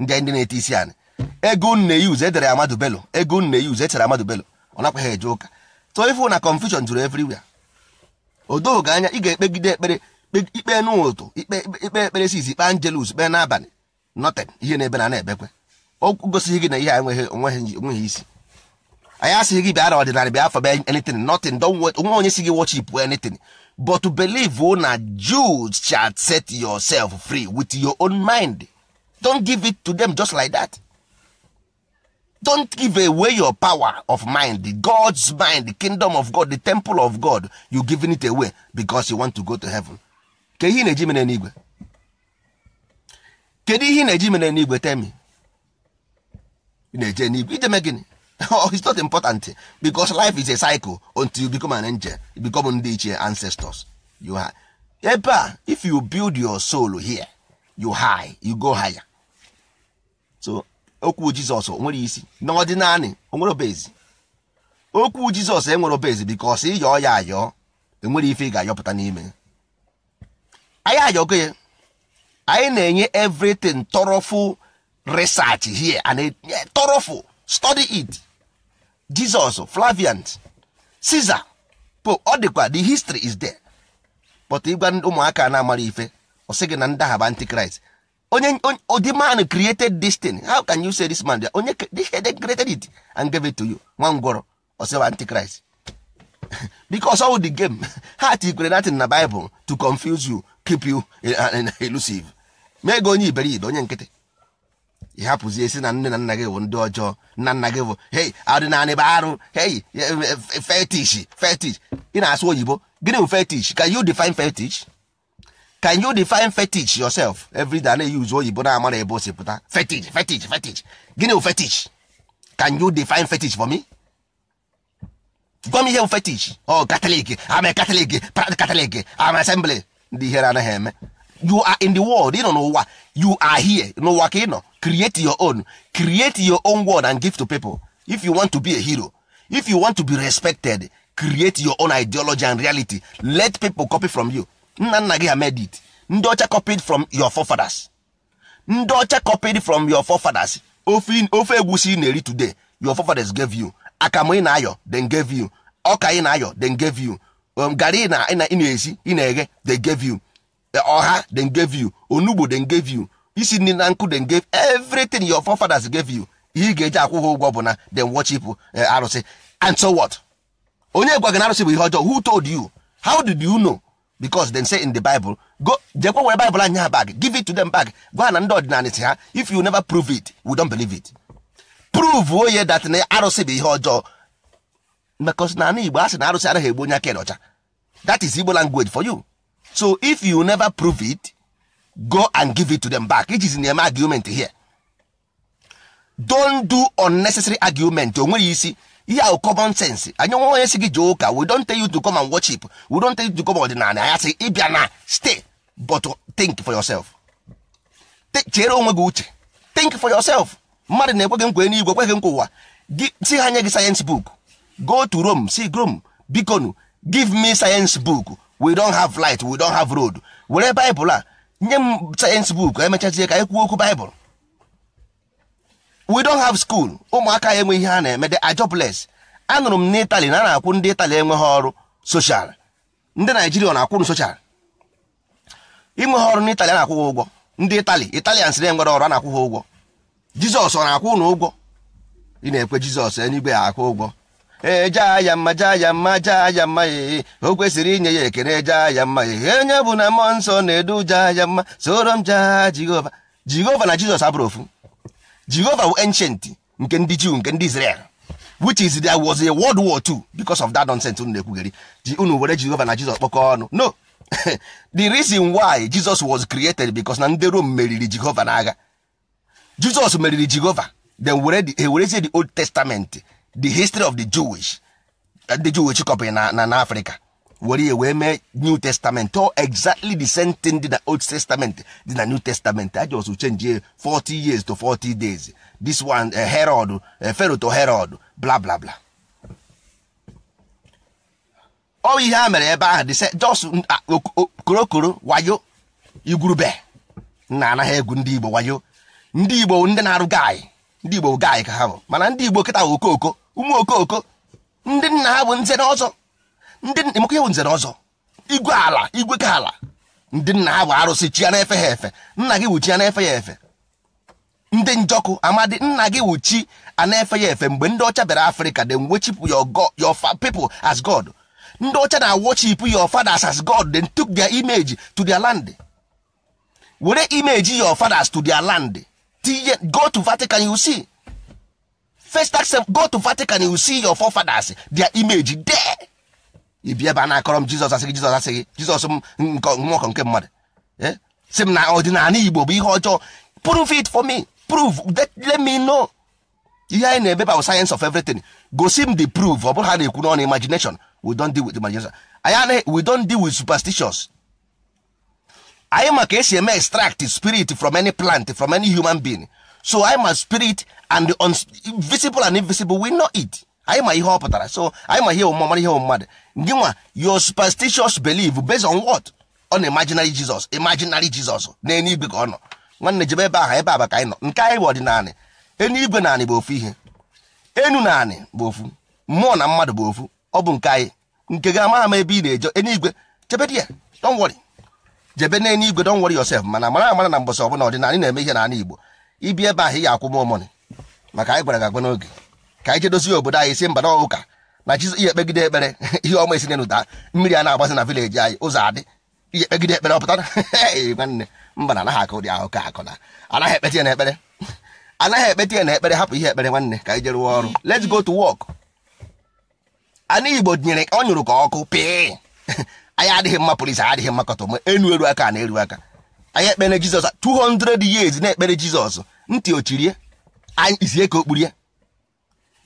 ndị ndị na-ete isi anyị ego nne use edere amadu belo ego nne use echere amadu belo ọ nakwa ha eje ụka so ifu na confusion juru everywhere odogo anya ị ga-ekpegide ekpere ikpe n'ụtụ ikpe ekpere sis ikpe angelus kpee n'abalị noten ihe na-ebe na na-ebekwe o gosighị gị na ihe enweghị onweghị isi anyị asịghị gị bịa na ọdịnala bịa afọ bịa anything nothing onwe onye si gị worship anything but believe na jus shall set yourself free with your own mind don't give it to them just like that. don't give away your power of mind god's mind the kingdom of god the temple of god you giving it away becos you want to go to heaven Kedu ihe na-eji mere n'igwe kedu ihe na-eji mere n'igwe temi na-eje n'igwe ijeme gịnị oh, it's not important because life is a cycle until you become an angel you become ndị ichie ancestors you ebe a if you build your soul here you high you go higher okwu jizọs nwere isi n'ọdịnanị onwere obezi okwu jizọs enwere obezi bikos ịyọọ ya ayọọ enwere ife ị ga-ayọpụta n'ime anyị ayọgo ya anyị na-enye everything tọrọfụ research here and e, tọrọfụ stọdị it jizọs flavian caesar pope ọ dịkwa the history is there but ịgwa ụmụaka na-amara ife ọ sị gị na ndahaba antikrist onye oh, the man created this thing how can you say this man onye this created it and gave it to you nwa ngwọrọ ọsịwa antichrist because all the game ha tikwere natin na bible to confuse you keep you eh, eh, eh, elusive mee gị onye iberibe onye nkịtị ị hapụzie si na nne na nna gị bụ ndị ọjọọ nna nna gị bụ hei ọdịnala bụ arụ hei fetish fetish ị na-asụ oyibo gịnị bụ fetish can you define fetish can you define fetish yourself every day na use oyibo na-amara ebe o si pụta fetish fetish fetish gịnị fetish can you define fetish for me gwa m ihe fetish o oh, catholic ama katọlik pra catholic ama asembli ndị ihere anaghị eme you are in the world ịnọ n'ụwa you are here n'ụwa ka ịnọ create your own create your own world and give to people if you want to be a hero if you want to be respected create your own ideology and reality let people copy from you nna nna gị ha made it ndị ọcha copied from your forefathers ndị ọcha copied from your forefathers ofe egwusi na-eri today your forefathers gave you akamụ ị na-ayọ then gave you ọka ị na-ayọ then gave you um, garị ị na-esi ị na-eghe they gave you eh, ọha then gave you onugbo then gave you isi nri na nkụ then gave everything your forefathers gave you ihe ị ga-eji akwụ ha ụgwọ bụ na then worship eh, arụsị and so what onye gwa gị na arụsị bụ ihe ọjọọ who told you how did you know because they say in the bible go jekwa were bible anya bag give it to them back gwa na ndị ọdịnala si ha if you never prove it we don't believe it prove onye oh, that na arụsị bụ ihe ọjọọ because na igbo asị na arụsị adịghị egbu onye aka ọcha that is igbo language for you so if you never prove it go and give it to them back iji na eme argument here don't do unnecessary argument o nweghị isi ihe ahụ common sense anyị nwa onye si gị jee ụka we don't tell you to come and worship we ọdịnala anya sị ịbịa na stay but think for yourself chere onwe gị uche think for yourself mmadụ na-ekwe gị nkwe n'igwe ekweghị nkwa ụwa si ha nye gị sayensị book go to Rome si Rome bikonu give me sayensị book we don't have light we don't have road were Bible a nye m sayensị book emechazie ka anyị kwuo okwu Bible we don't have school ụmụaka ya enwe ihe ha na-eme the anụrụ m na a na-akwụ ndị itali enweghị ọrụ soshal ndị naijiria na-akwụrụ soshal inweghị ọrụ n'itali a na-akwụ ụgwọ ndị itali italians na-enwere ọrụ a na-akwụ ụgwọ jizọs ọ na-akwụ na ụgwọ na-ekwe jizọs e, ya akwụ e, e. kwesịrị inye ya ekene ya mma nsọ na-edu ofu jehova were ancient nke ndị jew nke ndị israel which is there was a world war II because of that nonsense unu na-ekwugheri ji unu were jehova na jizọs kpọkọ ọnụ no the reason why jesus was created because na ndị rom meriri jehova n'agha jesus meriri jehova then were the, werezie the old testament the history of the jewish the jewish company na na africa were ya wee mee new testament ọ exactly the same thing dị na old testament dị na new testament a just change 40 years to 40 days this one uh, herod uh, pharaoh to herod bla bla bla ọ oh, ihe a mere ebe ahụ dịse jos mm, ah, korokoro wayo igwurube nna anaghị egwu ndị igbo wayo ndị igbo ndị na-arụ gaị ndị igbo gaị ka ha bụ mana ndị igbo kịta bụ ụmụ okoko ndị nna ha bụ nze ọzọ ndị maka iwu nzere ọzọ igwe ala igwe ka ala ndị nna ha bụ arụsị chi ya na-efe ha efe nna gị wuchi ya na-efe ya efe ndị njọkụ amadi nna gị wuchi a na-efe ya efe mgbe ndị ọcha bịara afrịka de wechipụ your people as god ndị ọcha na worship your fathers as god then took their image to their land were image your fathers to their land tinye go to vatican you see first go to vatican you see your forefathers their image there ị bịa ebe a na-akọrọ m jizọs asị jizọs asị jizọs m nwaọkọ nke mmadụ e? si m na ọdịnala igbo bụ ihe ọjọọ prove it for me prove let me know ihe anyị na-eme bụ science of everything gosi m the proof ọ bụrụ ha na-ekwu n'ọnụ imagination we don deal with imagination anyị we don deal with superstitions anyị ma ka esi eme extract spirit from any plant from any human being so anyị ma spirit and the visible and invisible we know it. anyị ma ihe ọ pụtara so anyị ma ihe omume mara ihe mmadụ gị nwa your superstitious belief based on what na imaginary jizọs imaginary jizọs na eluigwe ka ọ nọ nwanne jebe ebe aha ebe aba ka anyị nọ nke anyị bụ ọdịnala eluigwe naanị bụ ofu ihe enu naanị bụ ofu mmụọ na mmadụ bụ ofu ọ bụ nke anyị nke gị amaghị ama ebe ị na-eje eluigwe chebe di ya don't jebe na eluigwe don't worry mana mara amara na mbọsị ọbụla ọdịnala na-eme ihe n'ala Igbo ibi ebe ahụ ị ga-akwụ m omoni maka anyị gwara gị agwa n'oge ka anyị jedozie obodo anyị si mba na ụka na chi ihe ekpegide ekpere ihe ọma esi n'ụda mmiri a na-agbasi na vileji anyị ụzọ adị ihe ekpegide ekpere ọpụta nwanne mba na anaghị aka ụdị ahụ ka akụ na anaghị ekpeti ya na ekpere anaghị ekpeti ya na ekpere hapụ ihe ekpere nwanne ka anyị jere rụọ ọrụ let's go to work anụ igbo nyere ọ nyụrụ ka ọkụ pii. anyị adịghị mma polisi adịghị mma kọtọ enu eru aka na-eru aka anyị ekpere jizọs 200 years na-ekpere jizọs ntị ochirie anyị izie ka okpurie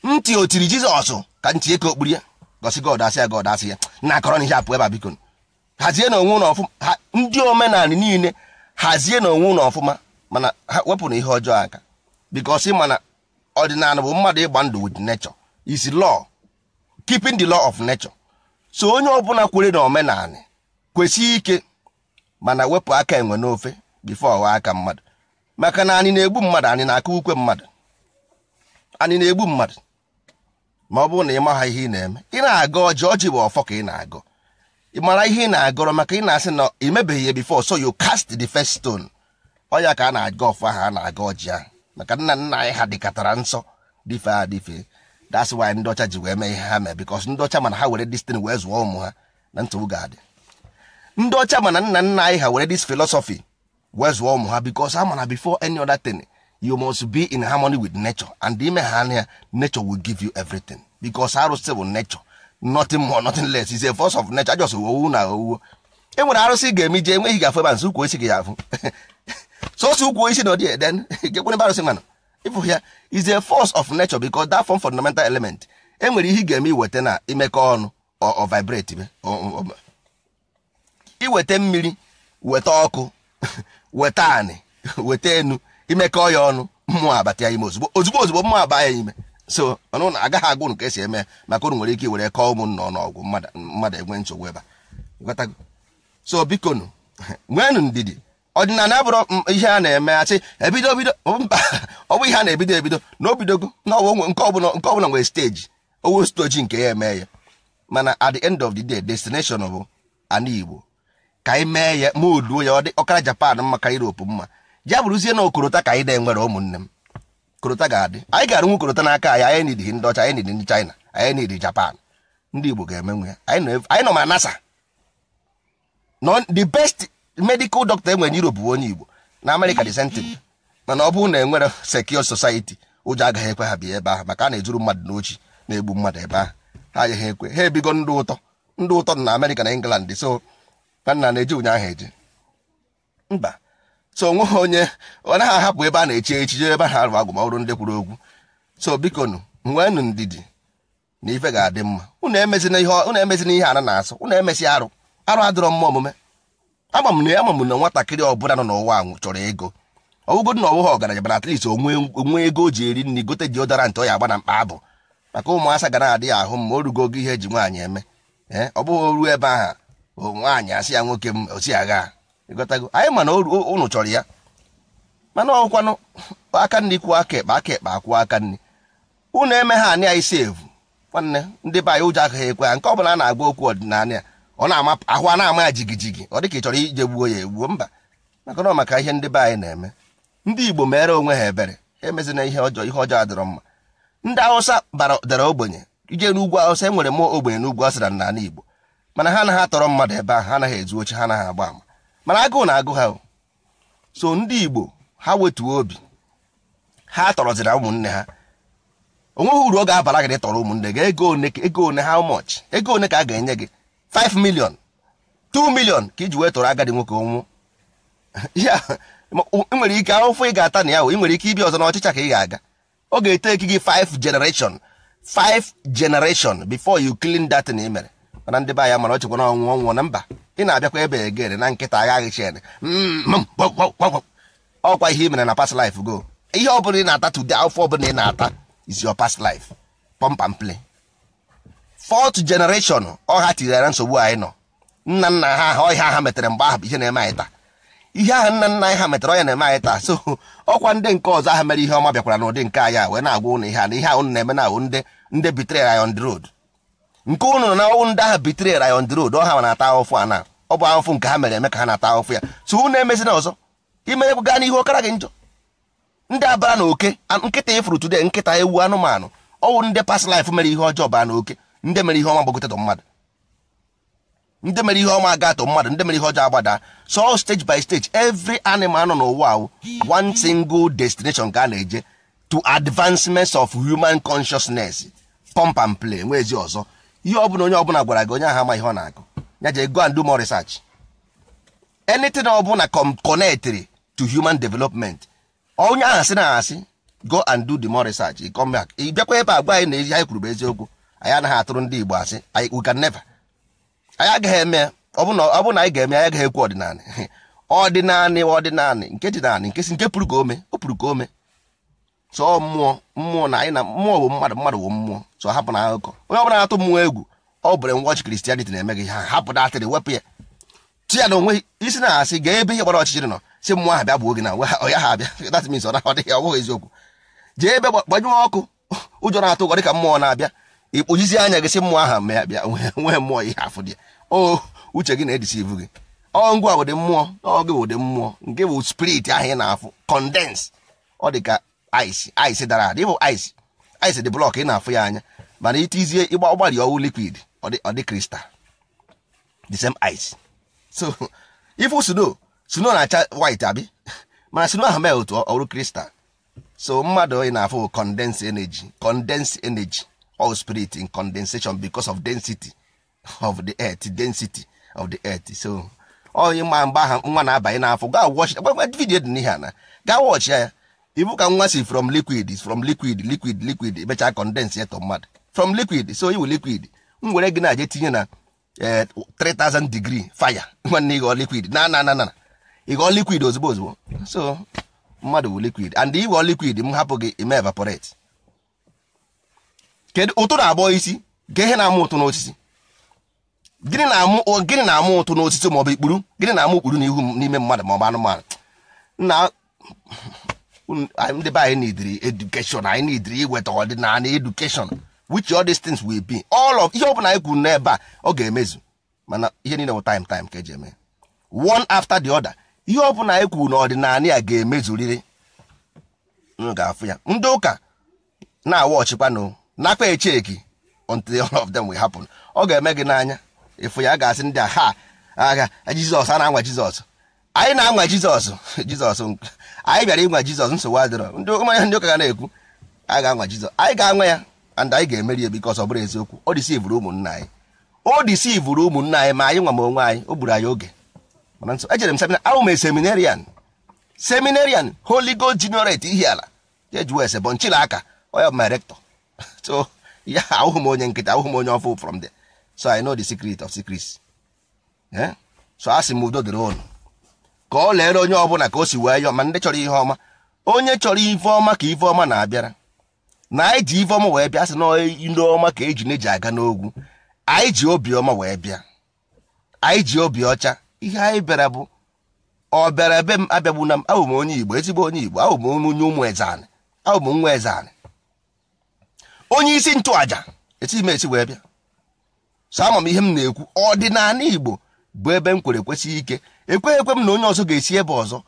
ntị o tiri jizọs ka ntị eke okpuru ya gosi god asị ya god asị ya na akọrọ n'ihe apụ ebe biko hazie na onwe ụlọ ọfụma ndị omenala niile hazie na onwe ụlọ ọfụma mana ha wepụ na ihe ọjọọ aka bikos mana ọdịnala bụ mmadụ ịgba ndụ with nature is law keeping the law of nature so onye ọbụla kwere na omenala kwesị ike mana wepụ aka enwe n'ofe bifo ọwa aka mmadụ maka na anyị na-egbu mmadụ anyị na akụ ukwe mmadụ anyị na-egbu mmadụ ma ọ bụrụ na ị maha ihe ị na-eme ị na aga ọjị ọjị bụ ọfọ ka ị na-agọ ị mara ihe ị na-agọrọ maka ị na-asị na emebeghị ya before so you cast the first stone ọya ka a na-aga ọfọ ahụ a na-aga ọjị ahụ maka nna nna anyị ha dịkatara nsọ dịfe a dịfe that's why ndị ọcha ji wee mee ihe ha mee because ndị ọcha mana ha were destin wee zụọ ụmụ ha na nsogbu ga ndị ọcha mana nna nna anyị ha were this philosophy wee zụọ ụmụ ha because ha mana before any other thing you must be in harmony with nature and ime ha anya nature will give you everything because arụsị bụ nature nothing more nothing less is a force of nature just owu na owuwo e nwere arụsị ga-eme ije enweghị gafe ba nso ukwu isi gị afụ sosi ukwu isi na ọdị den gekwenebe arụsị mana ịfụ ya is a force of nature because that form fundamental element enwere ihe ị ga-eme iweta na imekọ ọnụ ọ vibrate iweta mmiri weta ọkụ weta anị weta enu imekọ ya ọnụ mmụọ abata ya ime ozugbo ozugbo ozugbo mmụọ aba ya ime so ọnụ na agaghị agwụ nke ka esi eme maka unu nwere ike were kọọ ụmụnna ọnụ ọgwụ mmadụ enwe nsogbu ebe a so biko nụ nweenụ ndidi ọdịnala bụrụ ihe a na-eme asị ebido bido mba ọ bụ ihe a na-ebido ebido na obidogo nke ọbụla nwere steji owo stoji nke ya eme ya mana at the end of the day destination bụ ana igbo ka anyị mee ya ma oduo ya ọ dị ọkara japan mma ka Europe mma ya bụrụzie na okorota ka anyị dị nwere ụmụnne m korota ga-adị anyị ga nwe korota n'aka anyị anyị nidi ndị ọcha anyị ndị China anyị nidi Japan ndị Igbo ga-emenwe ya anyị nọ ma nasa the best medical doctor enwere na Europe bụ onye Igbo na amerika de sentiment mana ọ bụrụ na enwere secure society ụjọ agaghị ekwe ha bi ebe ahụ maka a na-ezuru mmadụ n'ochi na-egbu mmadụ ebe ahụ ha agaghị ekwe ha ebigo ndụ ụtọ ndụ ụtọ na amerika na England so nna na-eji ụnyaahụ eji mba so ha onye ọ naghị ahapụ ebe a na-eche echiche ebe a na-arụ agụmọrụ ndị kwuru okwu so biko nụ nweenụ ndidi na ife ga-adị mma unu emezina ihe a na-asụ unu emesi arụ arụ adịrọ mma omume ama na ama na nwatakịrị ọbụla nọ n'ụwa chọrọ ego ọwụgodị na ọwụghị ọgaranya bara at least onwe ego o ji eri nri gote deodorant ọ ya agba na mkpa abụ maka ụmụasa ga na-adịghị ahụ mma ma o rugo oge ihe eji nwaanyị eme ee ọ bụghị ruo ebe ahụ nwaanyị asị ya nwoke m osi agha ịghọtago anyị mana unu chọrọ ya mana ọkwanụ aka nri kwuo aka ekpe aka ekpe akwụọ aka nri unu eme ha anyị anyị sevu nwanne ndị be anyị ụjọ agaghị ekwe ya, nke ọbụla a na-agba okwu ọdịnala ya ọ na-ama ahụ a na-ama ya jigijigi ọ dịka ị chọrọ ije gbuo ya egbuo mba maka na maka ihe ndị be anyị na-eme ndị igbo mere onwe ha ebere ha emezina ihe ọjọọ ihe ọjọọ adịrọ mma ndị awụsa dara ogbenye ije n'ugwu awụsa enwere m ogbenye n'ugwu asịra n'ala igbo mana ha anaghị atọrọ mmadụ ebe ahụ ha anaghị ezu oche ha anaghị agba ama mana agụụ na-agụ ha so ndị igbo ha wetuo obi ha tọrọzira ụmụnne ha onweghị uru ọ ga-abara gị tọrọ ụmụnne gị ego one ego one ha much ego one ka a ga-enye gị 5 million 2 million ka iji wee tọrọ agadi nwoke ọnwụ ya nwere ike ahụfụ ị ga-ata na ya ị nwere ike ibi ọzọ n'ọchịcha ka ị ga-aga ọ ga-ete gị 5 generation 5 generation before you clean that na mana ndị be anya mara ọchịkwa na ọnwụ na mba ị na-abịakwa ebe egere na nkịta agaghị chen ọkwa ihe ị mere na past life go ihe ọ bụla ị na-ata tude afọ ọ bụla ị na-ata is your past life pump and play ọha tinyere nsogbu anyị nọ nna nna ha ọhịa ha metere mgbe ahụ ihe na-eme anyị taa ihe ahụ nna nna anyị ha metere ọnya na-eme anyị taa so ọkwa ndị nke ọzọ mere ihe ọma bịakwara n'ụdị nke anyị a na-agwa ihe a na na-eme na ahụ ndị ndị bitere anyị on the road nke ụnụ na ọnwụ ndị ahụ bitere ra on the ọha ha na-ata ahụfụ a na ọ bụ ahụfụ nke ha mere eme ka ha na-ata ahụfụ ya so na-emezi na ọzọ imerekwu gaa n'ihu ọkara gị njọ ndị abara na oke nkịta ịfụrụ e today nkịta ewu anụmanụ ọwụ ndị past life mere ihe ọjọọ baa na oke ndị mere ihe ọma gbagotetụ mmadụ ndị mere ihe ọma agatụ mmadụ ndị mere ihe ọjọọ agbada so stage by stage every animal nọ n'ụwa awụ one single destination ka a na-eje to advancement of human consciousness pump and play nwezi ọzọ ihe ọbụla onye ọbụla gwara gị onye ahụ ama ihe ọ na-agụ ya je go and do more research anything ọbụla connected to human development onye ahụ sị na asị go and do the more research ị come back ị bịakwa ebe a gwa anyị na ezi anyị kwuru bụ eziokwu anyị anaghị atụrụ ndị Igbo asị we can never anyị agaghị eme ọ bụ na anyị ga-eme anyị agaghị ekwu ọdịnala ọdịnala ọdịnala nke dịnala nke si nke pụrụ ka ome o pụrụ ka ome sọ mmụọ mmụọ na anyị na mmụọ bụ mmadụ mmadụ bụ mmụọ sọ hapụ na akụkọ onye ọbụla na-atụ mmụọ egwu ọ bụrụ nwọchị kristianity na-eme gị ha hapụ atịrị wepụ ya ti ya na onwe isi na asị gaa ebe ihe gbara ọchịchịrị nọ si mmụọ ha bịa bụ oge na ya ha abịa that means ọ na ọ ọ bụghị eziokwu jee ebe gbanyụọ ọkụ ụjọ na-atụ ụgọ dịka mmụọ na-abịa ịkpụjizi anya gị si mmụọ ahụ mee abịa nwee mmụọ ihe afụ dị o uche gị na-edisi ivu gị ọ ngwa ụdị mmụọ ọ ụdị mmụọ nke bụ spirit ahụ ị na-afụ kọndens ọ dị ka ice ice dara ada ịbụ ice ice dị blọk ị na-afụ ya anya mana itizie ịgba ọgbalị ọwụ liquid ọdị dị kristal the same ice so ifu sno sno na-acha white abi mana sno ahụ mee otu ọrụ kristal so mmadụ ị na-afụ condense energy condense energy all spirit in condensation because of density of the earth density of the earth so onye ma mgbe ahụ nwa na-abanye n'afọ gaa wọchị vidiyo dị n'ihe na gaa wọchị ya ibu ka nwa si from liquid from liquid liquid liquid emechaa condense to mmadụ from liquid so iwu liquid m were gị na-aje tinye na 3000 eh, degree fire nwanne ịghọ liquid na na na na ịghọ liquid ozugbo ozugbo so mmadụ bụ liquid and ịghọ liquid m hapụ gị ime evaporate kedu ụtụ na-abụọ isi ga na-amụ ụtụ n'osisi gịnị na-amụ ụtụ n'osisi maọbụ ikpuru gịnị na-amụ ikpuru n'ihu n'ime mmadụ maọbụ anụmanụ na ndị be anyị need education anyị need iweta ọdịnala education which all these things will be all of ihe ọbụla anyị kwuru n'ebe a ọ ga-emezu mana ihe niile bụ time time ka eji eme one after the other ihe ọbụla anyị kwuru n'ọdịnala ya ga-emezurịrị m ga-afụ ya ndị ụka na-awa ọchịkwanụ nakwa echeki until all of them will happen ọ ga-eme gị n'anya ịfụ ya ga-asị ndị a ha agha jizọs a na-anwa jizọs anyị na-anwa jizọs jizọs anyị bịara ịnwa jizọs nsogbu adịrọ ndị ụmụanya ndị ụka ga na-ekwu anyị ga-anwa jizọs anyị ga-anwa ya and anyị ga-emeri ya bikos ọ bụrụ eziokwu o disivụrụ ụmụnna anyị o disivụrụ ụmụnna anyị ma anyị nwa ma onwe anyị o gburu anyị oge mana nso ejere m semina ahụ m e seminarian seminarian holy god generate ihi ala jejuwes bụ nchila aka onye ọbụma rektọ so ya ahụhụ m onye nkịta ahụhụ m onye ọfụ from there so i know the secret of secrets eh? so a sị m udo dịrị ụnụ ka ọ lere onye ọbụla ka o si wee yọọ ma ndị chọrọ ihe ọma onye chọrọ ife ọma ka ife ọma na-abịara na anyị ji ife ọma wee bịa sị na ndị ọma ka eji na-eji aga n'ogwu anyị ji ọma wee bịa anyị ji obi ọcha ihe anyị bịara bụ ọ bịara ebe m na m abụ m onye igbo ezigbo onye igbo abụ m onye ụmụ ezanị abụ m nwa ezanị onye isi ntụaja esi m esi wee bịa sọ ama m ihe m na-ekwu ọdịnala igbo bụ ebe m kwere kwesị ike ekweghị ekwe m na onye ọzọ ga-esi ebe ọzọ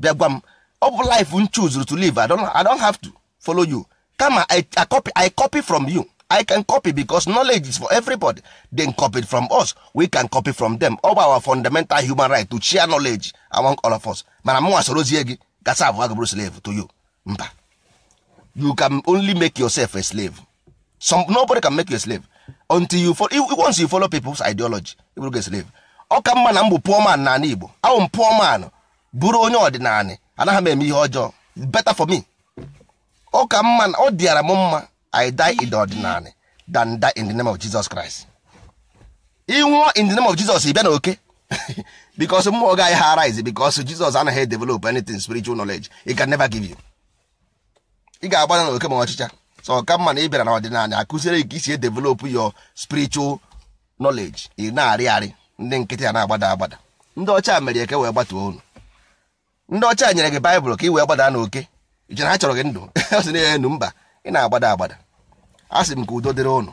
bịa gwa m ọ bụ life m to live I don have to follow you kama I, copy, from you I can copy because knowledge is for everybody den copied from us we can copy from them ọ bụ our fundamental human right to share knowledge among all of us mana m nwa sorozie gị gasa abụọ gabụrụ slave to you mba you can only make yourself a slave Some, nobody can make you a slave until you follow, once you follow people's ideology you will get slave ọ ka mma na m bụ pụọ n'ala Igbo awụ m pụọ man bụrụ onye ọdịnala anaghị m eme ihe ọjọọ better for me ọ ka mma na ọ dịara m mma I die in the ordinary than die in the name of Jesus Christ nwụọ in the name of Jesus ị bịa na oke because mmụọ gaghị ha arise because Jesus anaghị develop anything spiritual knowledge he can never give you ị ga-agbada na oke ma ọchịcha so ọ ka mma na ị bịara na ọdịnala akụziere gị ka isi develop your spiritual knowledge ị na-arị arị ndị nkịtị a na-agbada agbada ndị ọcha mere eke wee gbatuo unu ndị ọcha nyere gị baịbụl ka ị wee gbada n'oke ije ha chọrọ gị ndụ ọ sị na enu mba ị na-agbada agbada a sị m ka udo dịrị unu